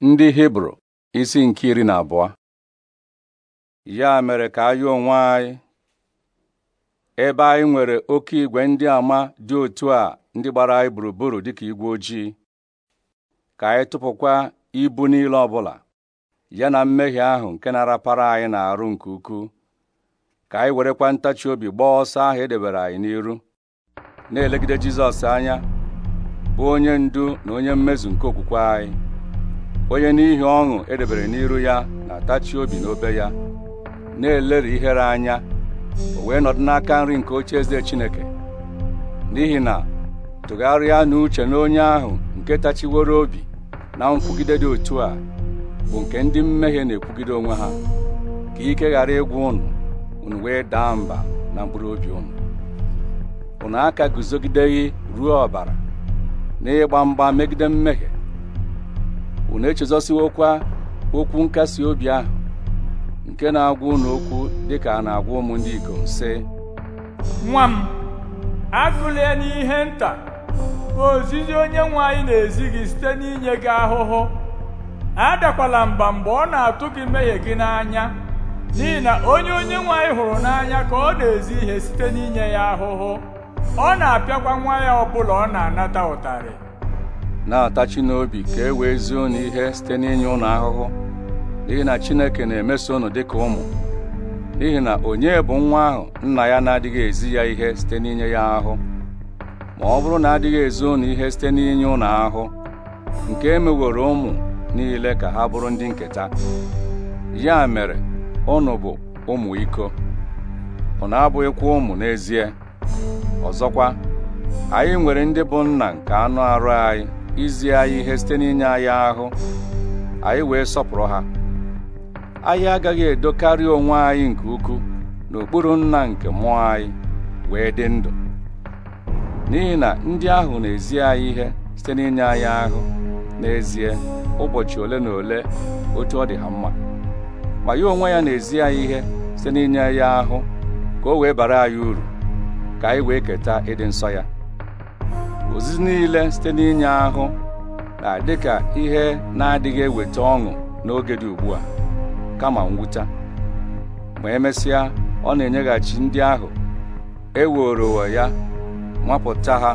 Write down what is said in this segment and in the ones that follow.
ndị hibru isi nke iri na abụọ ya mere ka anyị onwe anyị ebe anyị nwere oke igwe ndị ama dị otu a ndị gbara anyị gburugburu dịka igwe ojii ka anyị tụpụkwa ibu niile ọbụla ya na mmehie ahụ nke na-arapara anyị na-arụ nke ukwuu ka anyị werekwa ntachi obi gbaa ọsọ ahụ edebere anyị n'iru na-elegide Jizọs anya bụ onye ndu na onye mmezu nke okwukwe anyị onye n'ihi ọṅụ edebere n'iru ya na-atachi obi n'obe ya na-elere ihere anya o wee nọdụ n'aka nri nke oche eze Chineke n'ihi na tụgharịa n'uche na onye ahụ nke tachiworo obi na nkwugide dị otu a bụ nke ndị mmehie na-ekwugide onwe ha ka ike ghara ịgwụ ụnụ unu wee daa mba na mkpụrụ obi unu ụnụ aka guzogideghị ruo ọbara ịgba mgba megide mmehie na echezọsiwokwa okwu nkasi obi ahụ nke na-agwa ụnụ okwu dịka a na-agwa ụmụ ndị ikom sị nwa m ya n'ihe nta ozizi onye nwe anyị na-ezi gị site n'inye gị ahụhụ adakwala mba mgbe ọ na-atụ gị mmehie gị n'anya n'ihi na onye onye nwe anyị hụrụ n'anya ka ọ na-ezi ihe site n'inye ya ahụhụ ọ na-apịakwa nwa ya ọ bụla ọ na-anata ụtarị na-atachi n'obi ka e wee zie unu ihe site n'inye ụnụ ahụhụ n'ihi na Chineke na-emeso unu dịka ụmụ n'ihi na onye bụ nwa ahụ nna ya na-adịghị ezi ya ihe site n'inye ya ahụ ma ọ bụrụ na adịghị ezi unu ihe site n'inye ụnụ ahụ nke emeworo ụmụ niile ka ha bụrụ ndị nketa ya mere ụnụ bụ ụmụ iko unu abụghịkwa ụmụ n'ezie ọzọkwa anyị nwere ndị bụ nna nke anụ arụ anyị izi anyị ihe site n'inye anyị ahụ anyị wee sọpụrụ ha anyị agaghị edokarị onwe anyị nke ukwuu n'okpuru nna nke mmụọ anyị wee dị ndụ n'ihi na ndị ahụ na-ezi anyị ihe site n'inye anyị ahụ n'ezie ụbọchị ole na ole otu ọ dị ha mma ma ya onwe ya na-ezi anyị ihe site n'inye ya ahụ ka o wee bara anyị uru ka anyị wee keta ịdị nsọ ya ozizi niile site n'inye ahụ na dịka ihe na-adịghị eweta ọṅụ n'oge dị ugbu a kama nwụcha ma emesịa ọ na-enyeghachi ndị ahụ e eworowo ya nwapụta ha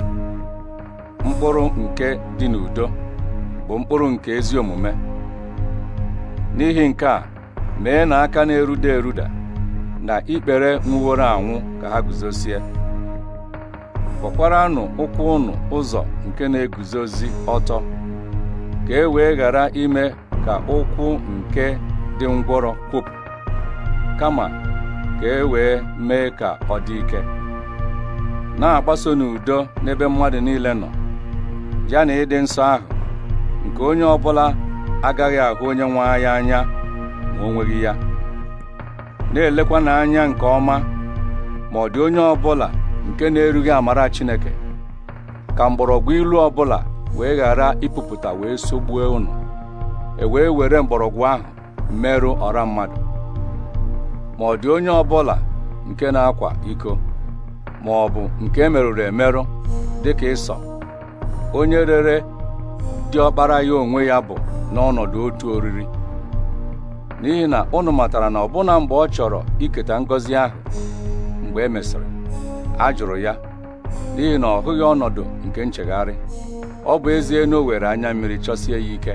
mkpụrụ nke dị n'udo bụ mkpụrụ nke ezi omume n'ihi nke a mee na aka na-eruda eruda na ikpere nwụworo anwụ ka ha guzosie kpọkwaranụ ụkwụ ụnụ ụzọ nke na-eguzozi ọtọ ka e wee ghara ime ka ụkwụ nke dị ngwọrọ kwup kama ka e wee mee ka ọ dị ike na-agbaso n'udo n'ebe mmadụ niile nọ ya na ịdị nsọ ahụ nke onye ọbụla agaghị ahụ onye nwe anyị anya ma o nweghị ya na-elekwa n'anya nke ọma ma ọ dị onye ọbụla nke na-erughị amara Chineke ka mgbọrọgwụ ilu ọbụla wee ghara ịpụpụta wee sogbuo unu e wee were mgbọrọgwụ ahụ merụ ọra mmadụ ma ọ dị onye ọbụla nke na-akwa iko ma ọ bụ nke e merụrụ emerụ dịka ịsọ onye rere dị ọkpara ya onwe ya bụ n'ọnọdụ otu oriri n'ihi na ụnụ matara na ọbụna mgbe ọ chọrọ iketa ngọzi ahụ mgbe e mesịrị a jụrụ ya n'ihi na ọ hụghị ọnọdụ nke nchegharị ọ bụ ezi na o were anya mmiri chọsie ya ike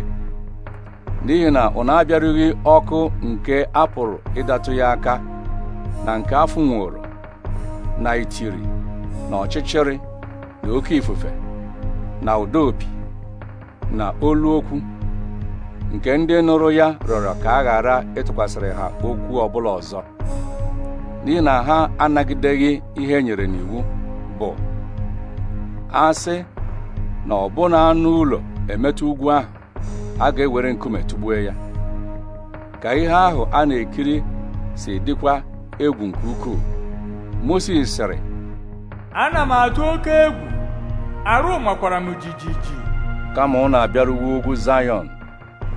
n'ihi na ọ na ọkụ nke a pụrụ ịdatụ ya aka na nke afụ nwụrụ na itiri na ọchịchịrị na oke ifufe na ụda opi na olu okwu nke ndị nụrụ ya rịọrọ ka a ghara ịtụkwasịrị ha okwu ọbụla ọzọ n'ihi na ha anagideghị ihe nyere n'iwu bụ asị na ọbụna anụ ụlọ emetụ ugwu ahụ a ga-ewere nkume tụgbue ya ka ihe ahụ a na-ekiri si dịkwa egwu nke ukwuu Mosis sịrị ana m atụ oke egwu arụ makwara m jijiji kama ọ na abịaruwu ugwu Zayọn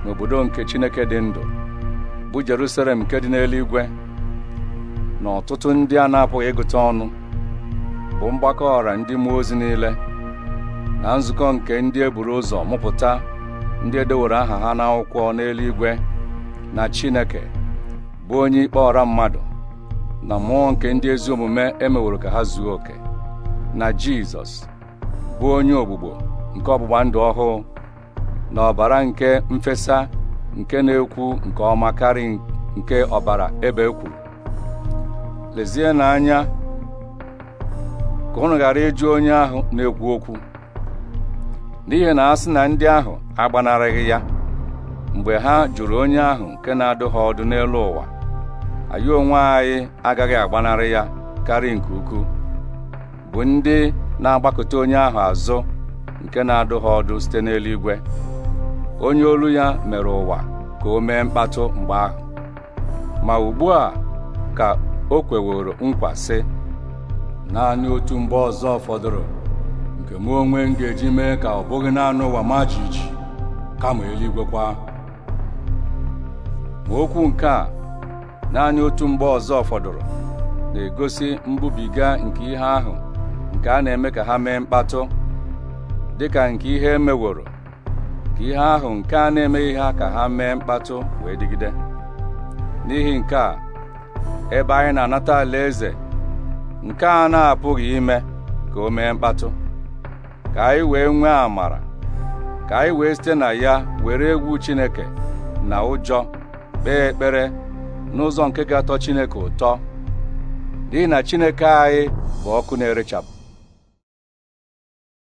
n'obodo nke Chineke dị ndụ bụ Jerusalem nke dị n'eluigwe na ọtụtụ ndị a na-apụghị ịgụta ọnụ bụ mgbakọ ọra ndị mmụọ ozi niile na nzukọ nke ndị eburu ụzọ mụpụta ndị edeworo aha ha n'akwụkwọ n'eluigwe na Chineke bụ onye ikpe ọra mmadụ na mmụọ nke ndị ezi omume emeworo ka ha zuo oke na Jizọs bụ onye ogbugbo nke ọgbụgba ndụ ọhụụ na ọbara nke mfesa nke na-ekwu nke ọma karị nke ọbara ebe e kwuru lezie n'anya ka unu ghara ịjụ onye ahụ na-ekwu okwu n'ihi na a sị na ndị ahụ agbanarịghị ya mgbe ha jụrụ onye ahụ nke na-adụ ha ọdụ n'elu ụwa anyị onwe anyị agaghị agbanarị ya karịa nke ukwuu bụ ndị na-agbakọta onye ahụ azụ nke na-adụ ha ọdụ site n'eluigwe onye olu ya mere ụwa ka o mee mkpatụ mgbe ahụ ma ugbu a ka o kweworo nkwa sị naanị otu mgbe ọzọ fọdụrụ nke mụ onwe m ga-eji mee ka ọ bụghị naanị ụwa ma jiji kama eluigwe ma okwu nke a naanị otu mgbe ọzọ fọdụrụ na-egosi mbubiga nke ihe ahụ nke a na-eme ka ha mee mkpatụ dịka nke ihe emeworo ka ihe ahụ nke a na-emeghị ha ka ha mee mkpatụ wee dịgide n'ihi nke a ebe anyị na-anata eze nke a na-apụghị ime ka o mee mkpatụ ka anyị wee nwee amara ka anyị wee site na ya were egwu Chineke na ụjọ kpee ekpere n'ụzọ nke ga-atọ Chineke ụtọ dị na Chineke anyị bụ ọkụ na-erechapụ